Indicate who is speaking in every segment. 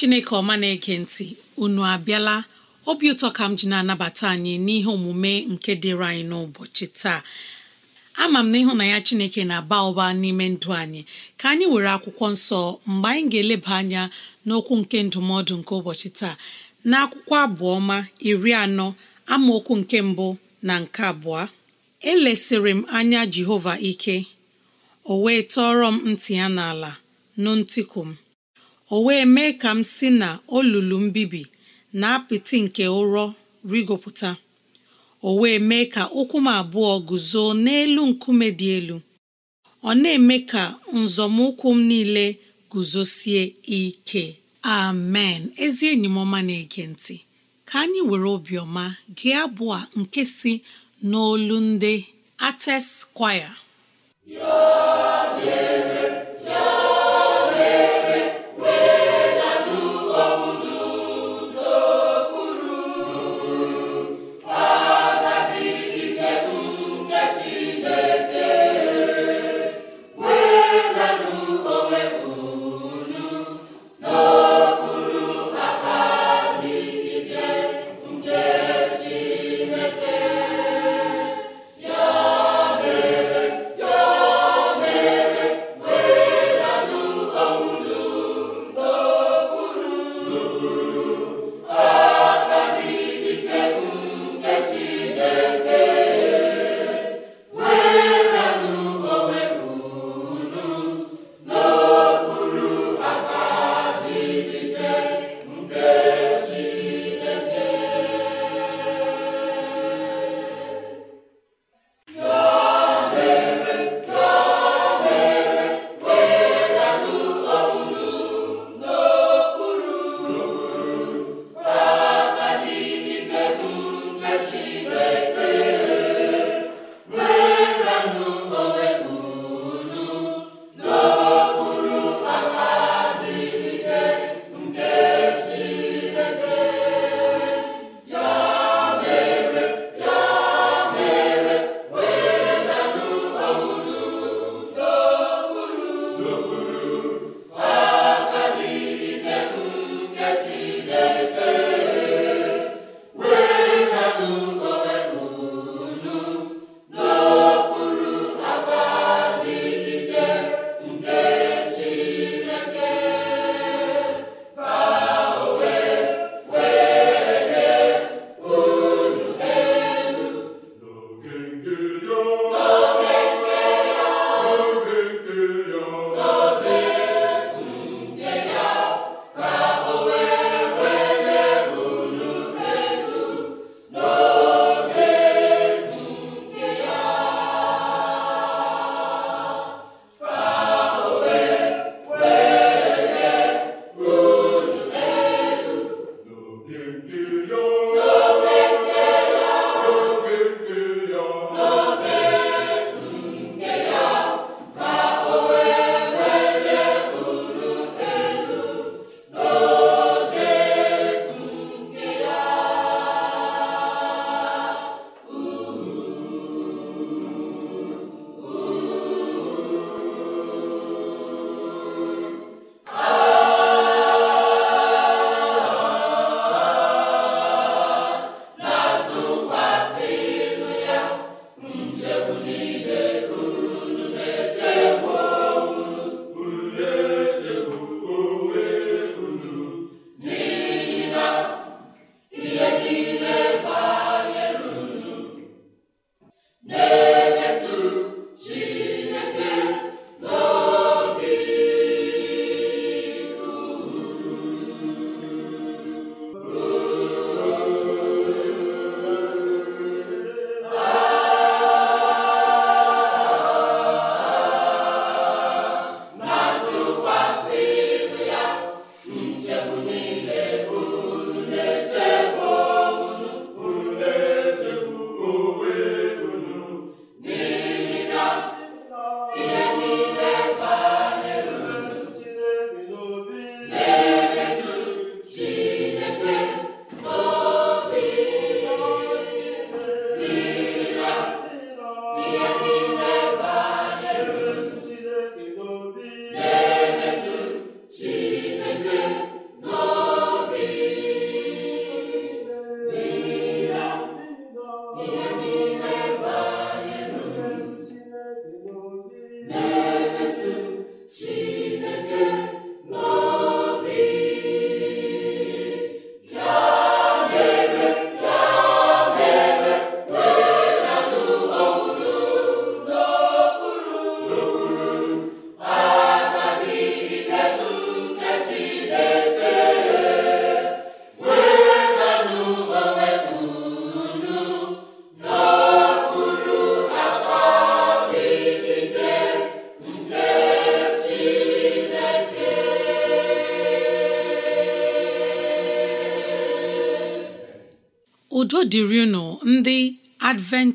Speaker 1: chineke ọma na-ege ntị unu abịala obi ụtọ ka m ji na-anabata anyị n'ihe omume nke dịrị anyị n'ụbọchị taa ama m na ya chineke na-aba ụba n'ime ndụ anyị ka anyị were akwụkwọ nsọ mgbe anyị ga-eleba anya n'okwu nke ndụmọdụ nke ụbọchị taa na akwụkwọ abụọma iri anọ amaokwu nke mbụ na nke abụọ elesịrị m anya jehova ike o wee tọọrọ m ntị ya n'ala nụ ntịkụ m o wee mee ka m si na olulu mbibi na apịtị nke ụrọ rigopụta o wee mee ka ụkwụ m abụọ guzo n'elu nkume dị elu ọ na-eme ka nzọmụkwụ m niile guzosie ike amen ezi enyi m ọma na-ege ntị ka anyị were obiọma gị abụọ nke si n'olu ndị ates kwaya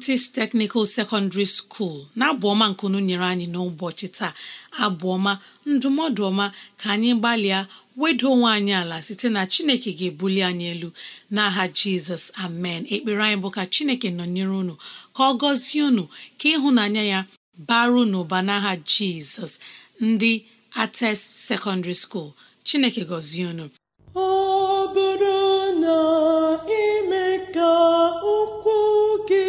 Speaker 1: adventist technical secondary school na-abụ ọma nkunu nyere anyị n'ụbọchị taa Abụọma, ndụmọdụ ọma ka anyị gbalịa wedo onwe anyị ala site na chineke ga-ebuli anyị elu n'aha jizọs amen ekpere anyị bụ ka chineke nọnyere unu ka ọ gọzie unu ka ịhụnanya ya baru n'ụba n'aha jizọs ndị ates secondary school chineke gọzie unu
Speaker 2: ọ bụrụ na ime ka okwu gị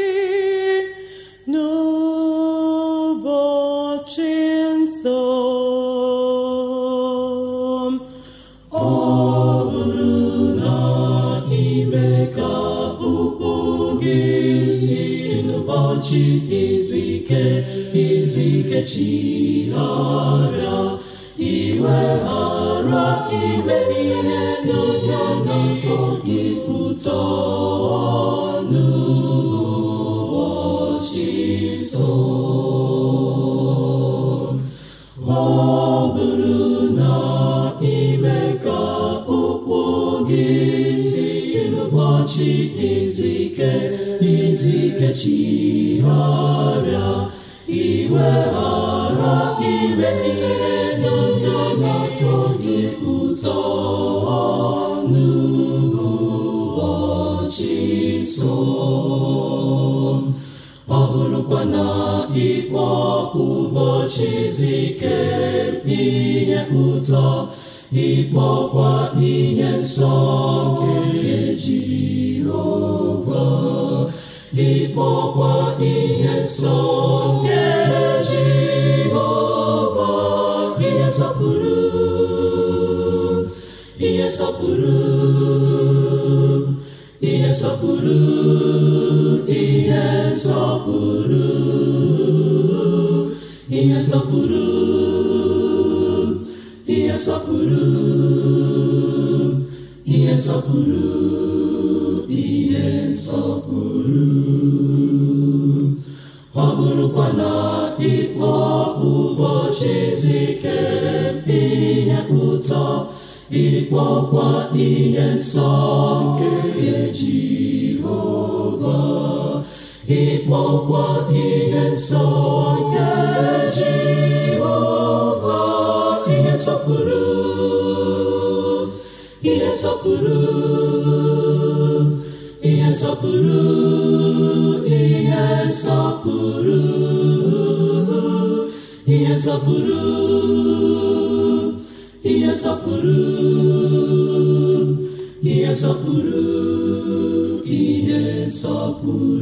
Speaker 2: n'ụbọchị nsọ ọ bụrụ na ime ka ụkwụ gị si n'ụbọchị izu ike izu ike chigharịa iwe ghara ime ihe n'ụtọ gị ụtọ Jesus. na-esọpụrụ
Speaker 3: ihe sọpụrụ ihe sọpụrụ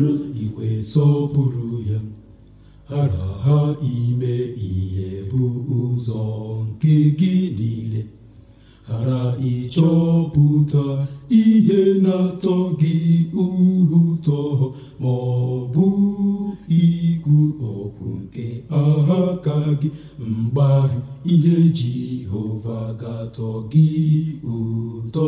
Speaker 3: ga ga-atọ gị ụtọ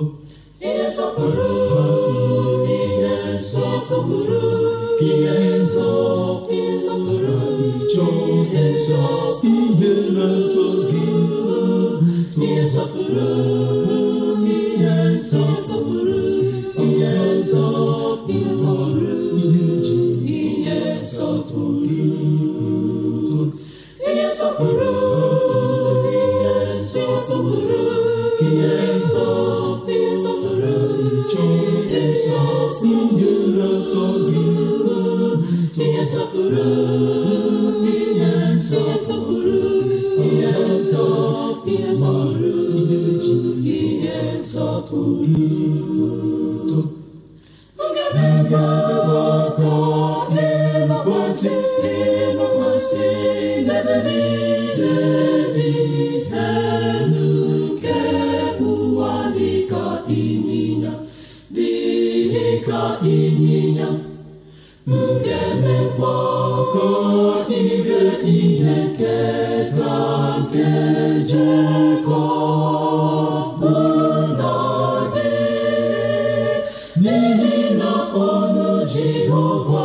Speaker 2: n'ehihie ọnụ Jehova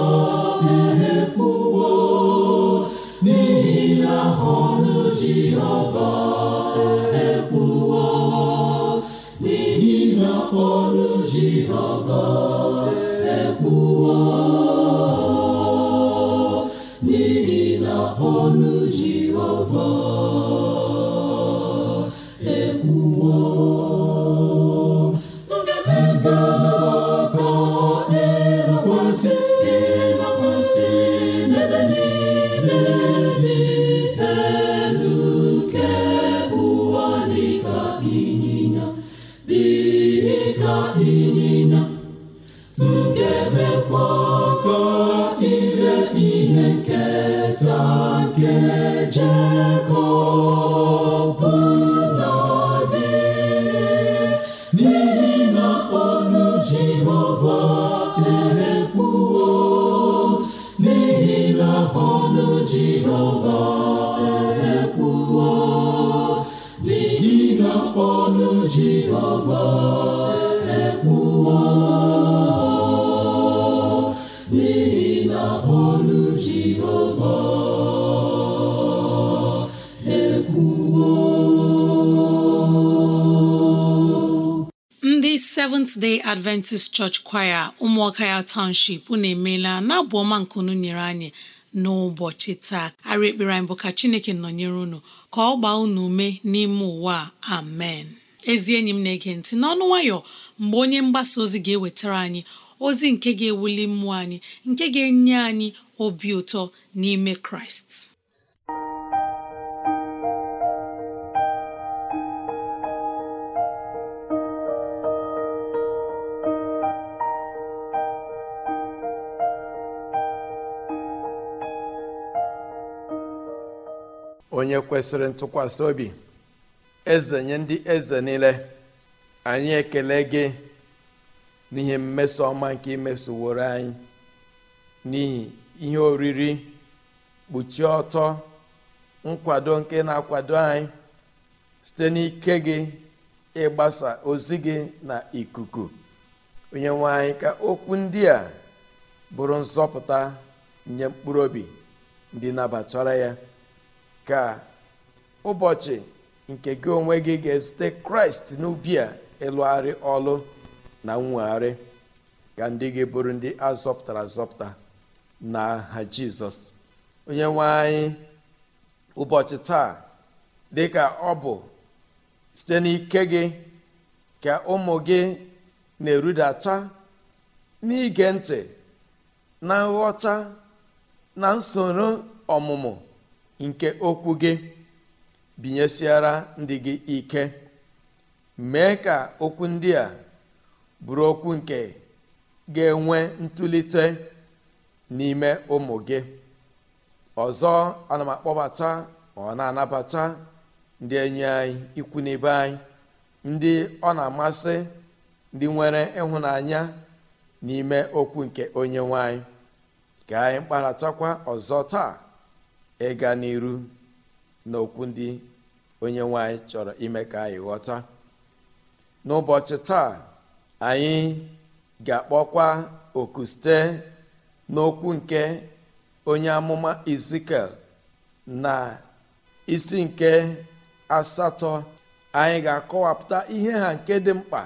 Speaker 2: ehe kwuwo n'ehihie ọnụ Jehova
Speaker 1: Seventh-day Adventist Church Choir ụmụọka ya Township unu emeela na-abụ ọma nke unu nyere anyị n'ụbọchị taa arị ekpere anyị bụ ka Chineke nọnyere unu ka ọ gbaa unu ume n'ime ụwa amen ezi enyi m na-ege ntị n'ọnụ nwayọ mgbe onye mgbasa ozi ga-ewetara anyị ozi nke ga-ewuli mmụọ anyị nke ga-enye anyị obi ụtọ n'ime Kraịst
Speaker 3: onye kwesịrị ntụkwasị obi eze nye ndị eze niile anyị ekele gị n'ihe mmeso ọma nke imesoworo anyị n'ihi ihe oriri kpuchie ọtọ nkwado nke na-akwado anyị site n'ike gị ịgbasa ozi gị na ikuku onye nwe anyị ka okwu ndị a bụrụ nzọpụta nye mkpụrụ obi ndị nabatara ya ka ụbọchị nke gị onwe gị ga-ezute kraịst n'ubi a ịlụgharị ọlụ na nwegharị ka ndị gị bụrụ ndị azọpụtara azọpụta na ha jizọs onye nwe anyị ụbọchị taa dị ka ọ bụ site n'ike gị ka ụmụ gị na-erudata n'ige ntị na nghọta na nsoro ọmụmụ nke okwu gị binyesiara ndị gị ike mee ka okwu ndị a bụrụ okwu nke ga-enwe ntụlite n'ime ụmụ gị ọzọ ana m akpọbata ọ na-anabata ndị enyi anyị ikwu n'ibe anyị ndị ọ na-amasị ndị nwere ịhụnanya n'ime okwu nke onye nwanyị ka anyị kparatakwa ọzọ taa ịga n'iru n'okwu ndị onye nwanyị chọrọ ime ka anyị ghọta n'ụbọchị taa anyị ga-akpọkwa oku site n'okwu nke onye amụma Ezikiel na isi nke asatọ anyị ga-akọwapụta ihe ha nke dị mkpa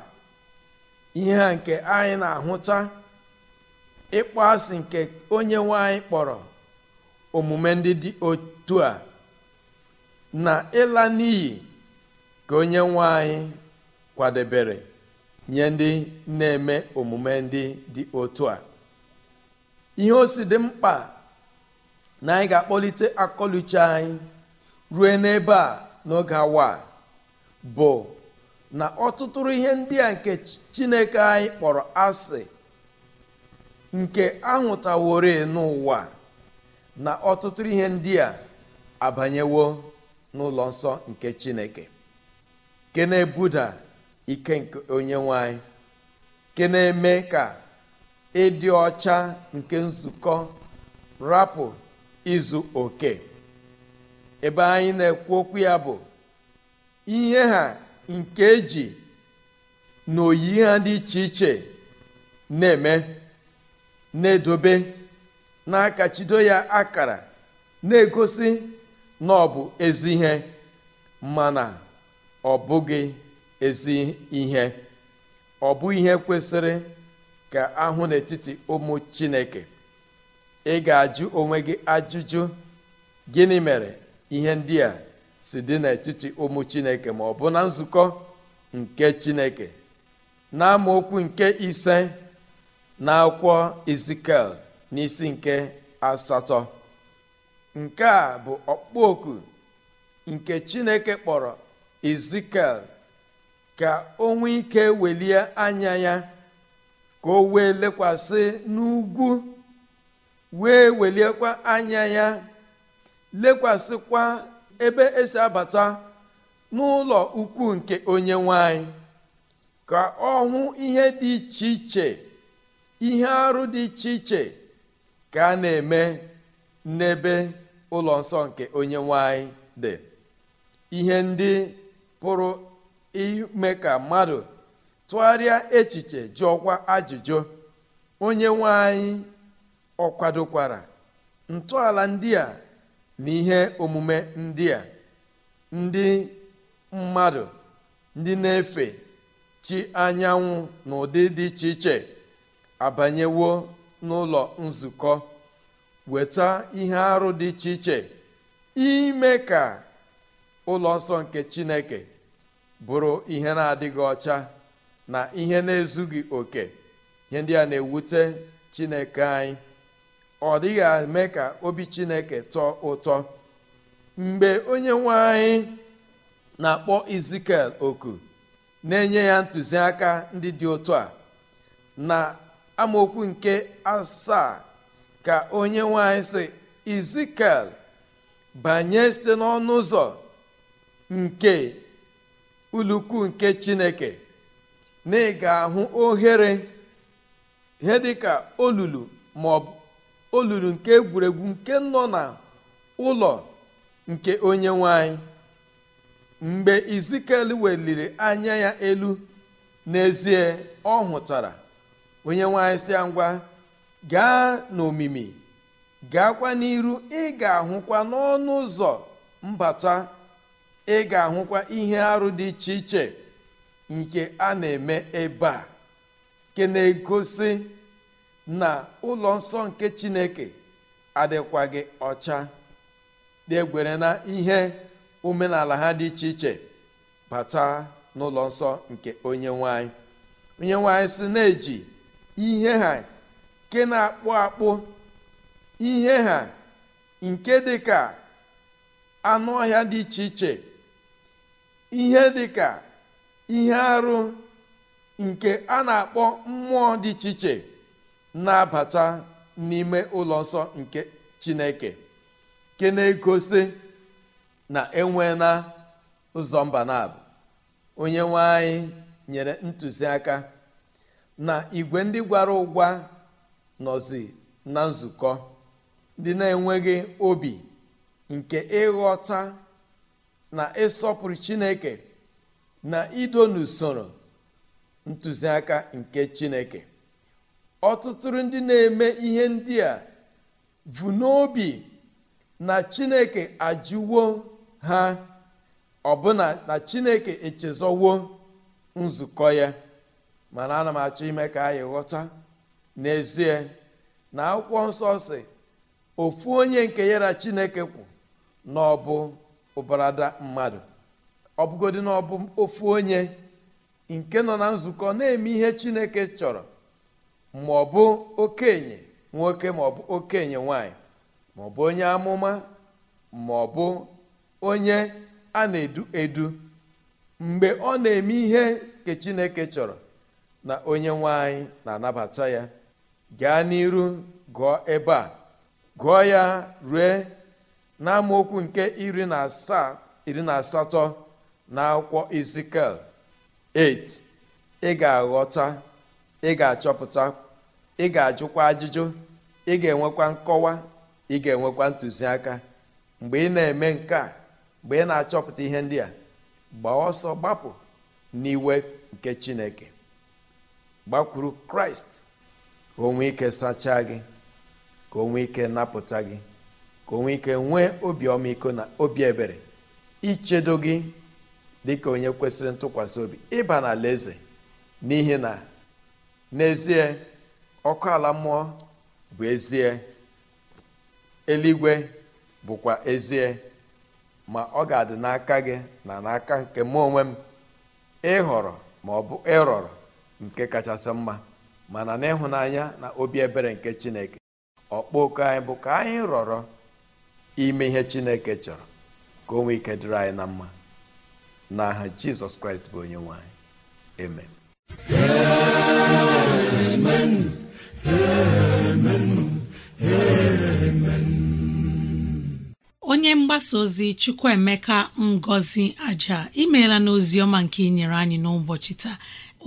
Speaker 3: ihe ha nke anyị na-ahụta ịkpọ asị nke onye nwanyị kpọrọ omume ndị dị otu a na ịla n'iyi ka onye nwe anyị kwadebere nye ndị na-eme omume ndị dị otu a ihe o si dị mkpa na anyị ga-akpọlite akọluche anyị ruo n'ebe a n'oge awa bụ na ọtụtụrụ ihe ndị a nke chineke anyị kpọrọ asị nke ahụtaworo n'ụwa na ọtụtụ ihe ndị a abanyewo n'ụlọ nsọ nke chineke ke na-ebuda ike nke onye nwanyị ke na-eme ka ịdị ọcha nke nzukọ rapụ izu oke ebe anyị na-ekwu okwu ya bụ ihe ha nke eji na oyi ha dị iche iche na-eme na-edobe na-akachido ya akara na-egosi na ọ bụ ezi ihe mana ọ bụghị ezi ihe ọ bụ ihe kwesịrị ka ahụ n'etiti ụmụ chineke ị ga-ajụ onwe gị ajụjụ gịnị mere ihe ndị a si dị n'etiti ụmụ chineke ma ọ bụ na nzukọ nke chineke na amaokwu nke ise na akwụkwọ izikel n'isi nke asatọ nke a bụ ọkpụ nke chineke kpọrọ ezikiel ka o nwee ike welie anya ya ka o wee lekwasị n'ugwu wee weliekwa anya ya lekwasịkwa ebe esi abata n'ụlọ ukwu nke onye nwanyị ka ọ hụ ihe dị iche iche ihe arụ dị iche iche ka a na-eme n'ebe ụlọ nsọ nke onye nwanyị dị ihe ndị pụrụ ime ka mmadụ tụgharịa echiche jụọkwa ajụjụ onye nwanyị ọkwadokwara kwadokwara ntọala ndị a na ihe omume ndị a ndị mmadụ ndị na-efe chi anyanwụ na ụdị dị iche iche abanyewo n'ụlọ nzukọ weta ihe arụ dị iche iche ime ka ụlọ nsọ nke chineke bụrụ ihe na-adịghị ọcha na ihe na-ezughị oke ihe ndị a na-ewute chineke anyị ọ dịghị eme ka obi chineke tọọ ụtọ mgbe onye nwe anyị na-akpọ izikel oku na-enye ya ntụziaka ndị dị ụtọ a na amaokwu nke asaa ka onye nwanyị si izikel banye site n'ọnụ ụzọ nke ulukwu nke chineke na ị ga-ahụ ohere ihe dịka olulu bụ olulu nke egwuregwu nke nọ na ụlọ nke onye nwanyị mgbe izikel weliri anya ya elu n'ezie ọ hụtara onye nwanyị si ya ngwa gaa n'omimi gaakwa n'iru ị ga-ahụkwa n'ọnụ ụzọ mbata ị ga-ahụkwa ihe arụ dị iche iche nke a na-eme ebe a nke na-egosi na ụlọ nsọ nke chineke adịkwaghị ọcha na-egwere na ihe omenala ha dị iche iche bata n'ụlọ nsọ nke onye nwanyị onye nwanyị si na-eji ihe ha nke na-akpụ akpụ ihe ha nke dị ka anụ ọhịa dị iche iche ihe dị ka ihe arụ nke a na-akpọ mmụọ dị iche iche na-abata n'ime ụlọ nsọ nke chineke ke na-egosi na enwe na ụzọ mba na abụ onye nwe anyị nyere ntụziaka na igwe ndị gwara ụgwa nọzi na nzukọ ndị na-enweghị obi nke ịghọta na ịsọpụrụ chineke na ido n'usoro ntụziaka nke chineke ọtụtụ ndị na-eme ihe ndị a vu n'obi na chineke ajụwo ha ọbụna na chineke echezọwo nzukọ ya mana ana m achọ ime ka anyị ghọta n'ezie na akwụkwọ nsọ si ofu onye nke ya chineke kwụ n'ọbụ mmadụ ọbụgodi na ofu onye nke nọ na nzukọ na-eme ihe chineke chọrọ ma ọ bụ okenye nwoke ma ọ bụ okenye nwanyị ma ọ bụ onye amụma ma ọ bụ onye a na-edu edu mgbe ọ na-eme ihe nke chineke chọrọ na onye nwe na-anabata ya gaa n'iru gụọ ebe a gụọ ya rue n'amaokwu nke iri na asaa na asatọ na akwụkwọ Ezikiel 8 ị ga-aghọta ị ga-achọpụta ị ga-ajụkwa ajụjụ ị ga-enwekwa nkọwa ị ga-enwekwa ntụziaka mgbe ị na-eme nke a mgbe ị na-achọpụta ihe ndị a gbaa ọsọ gbapụ n'iwe nke Chineke gbakwuru kraịst ka onwe ike sachaa gị ka o ike napụta gị ka onwe ike nwee obi ọmịiko na obi ebere ichedo gị dị ka onye kwesịrị ntụkwasị obi ịba n'ala eze n'ihi na n'ezie ọkụ ala mmụọ bụ ezie eluigwe bụkwa ezie ma ọ ga-adị n'aka gị na n'aka nke mụ onwe m ịhọrọ ma ọ bụ ịrọrọ nke kachasị mma mana n'ịhụnanya na obi ebere nke chineke ọkpọku anyị bụ ka anyị rọrọ ime ihe chineke chọrọ ka onwe ike dịrị anyị na mma n'aha jizọs kraịst bụ onye nwanyị. amen
Speaker 1: onye mgbasa ozi Chukwuemeka Ngozi Aja imeela n'ozi ọma nke inyere anyị n'ụbọchị taa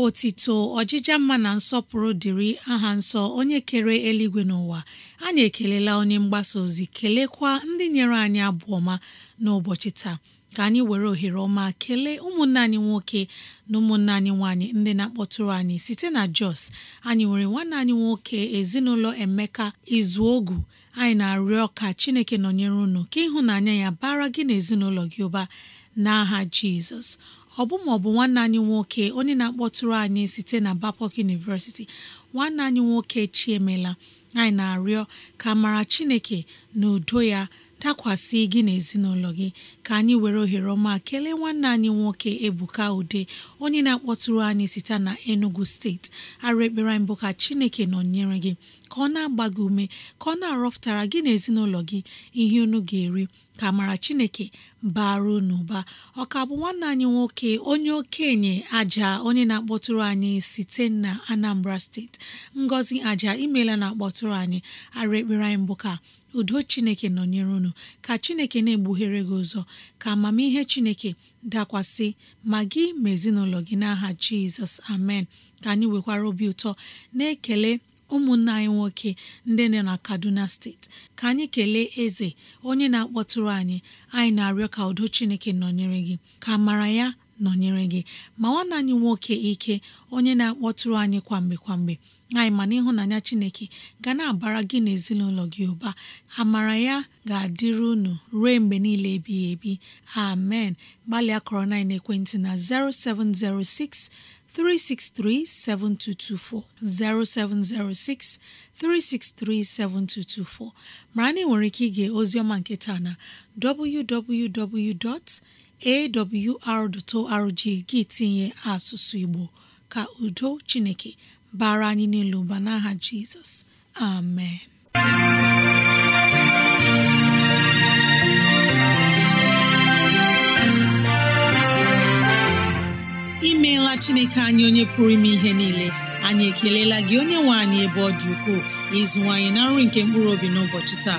Speaker 1: otito ọjịja mma na nsọpụrụ dịrị aha nsọ onye kere eluigwe n'ụwa anyị ekelela onye mgbasa ozi kelekwa ndị nyere anyị abụ ọma n'ụbọchị taa ka anyị were ohere ọma kelee ụmụnne anyị nwoke na ụmụnne anyị nwaanyị ndị na-akpọtụrụ anyị site na Jos anyị nwere nwanne anyị nwoke ezinụlọ Emeka Izuogu anyị na-arịọ ka chineke nọnyere unu ka ịhụnanya ya bara gị na ezinụlọ gị ụba n'aha jizọs ọ bụ ma bụ nwanne anyị nwoke onye na-akpọtụrụ anyị site na Babcock University nwanne anyị nwoke chiemela anyị na-arịọ ka mara chineke na udo ya dakwasị gị na ezinụlọ gị ka anyị were ohere ọma kelee nwanne anyị nwoke Ebuka Ude onye na-akpọtụrụ anyị site na Enugu steeti arụ ekpere ka Chineke nọnyere gị ka ọ na-agba gị ume ka ọ na-arọpụtara gị na gị ihe unu ga-eri ka mara Chineke bara unu ụba ọka bụ nwanne anyị nwoke onye okenye aja onye na-akpọtụrụ anyị site na Anambra steeti Ngozi aja imela na-akpọtụrụ anyị arụ ekpere anyị bụ ka udo Chineke nọnyere unu ka Chineke na-egbughere gị ụzọ ka amamihe chineke dakwasị ma gị ma ezinụlọ gị n'aha jizọs amen ka anyị nwekwara obi ụtọ na-ekele ụmụnna anyị nwoke ndị nọ na kaduna steeti ka anyị kelee eze onye na-akpọtụrụ anyị anyị na-arịọ ka udo chineke nọnyere gị ka mara ya nọnyere gị ma nwanne anyị nwoke ike onye na-akpọtụrụ anyị kwamgbe kwamgbe anyị mana ịhụnanya Chineke ga na-abara gị na ezinụlọ gị ụba amara ya ga adịru unu ruo mgbe niile ebighị ebi amen gbalịa kọrọ na ekwentị na 0706 363-7224 mara na ị nwere ike ige ozioma nke na www. awr.org gị tinye asụsụ Igbo ka udo Chineke bara anyị niile ụba n'aha Jizọs amen imeela Chineke anyị onye pụrụ ime ihe niile anyị ekelela gị onye nwe anyị ebe ọ dị ukwuu ịzụwanyị na nri nke mkpụrụ obi n'ụbọchị taa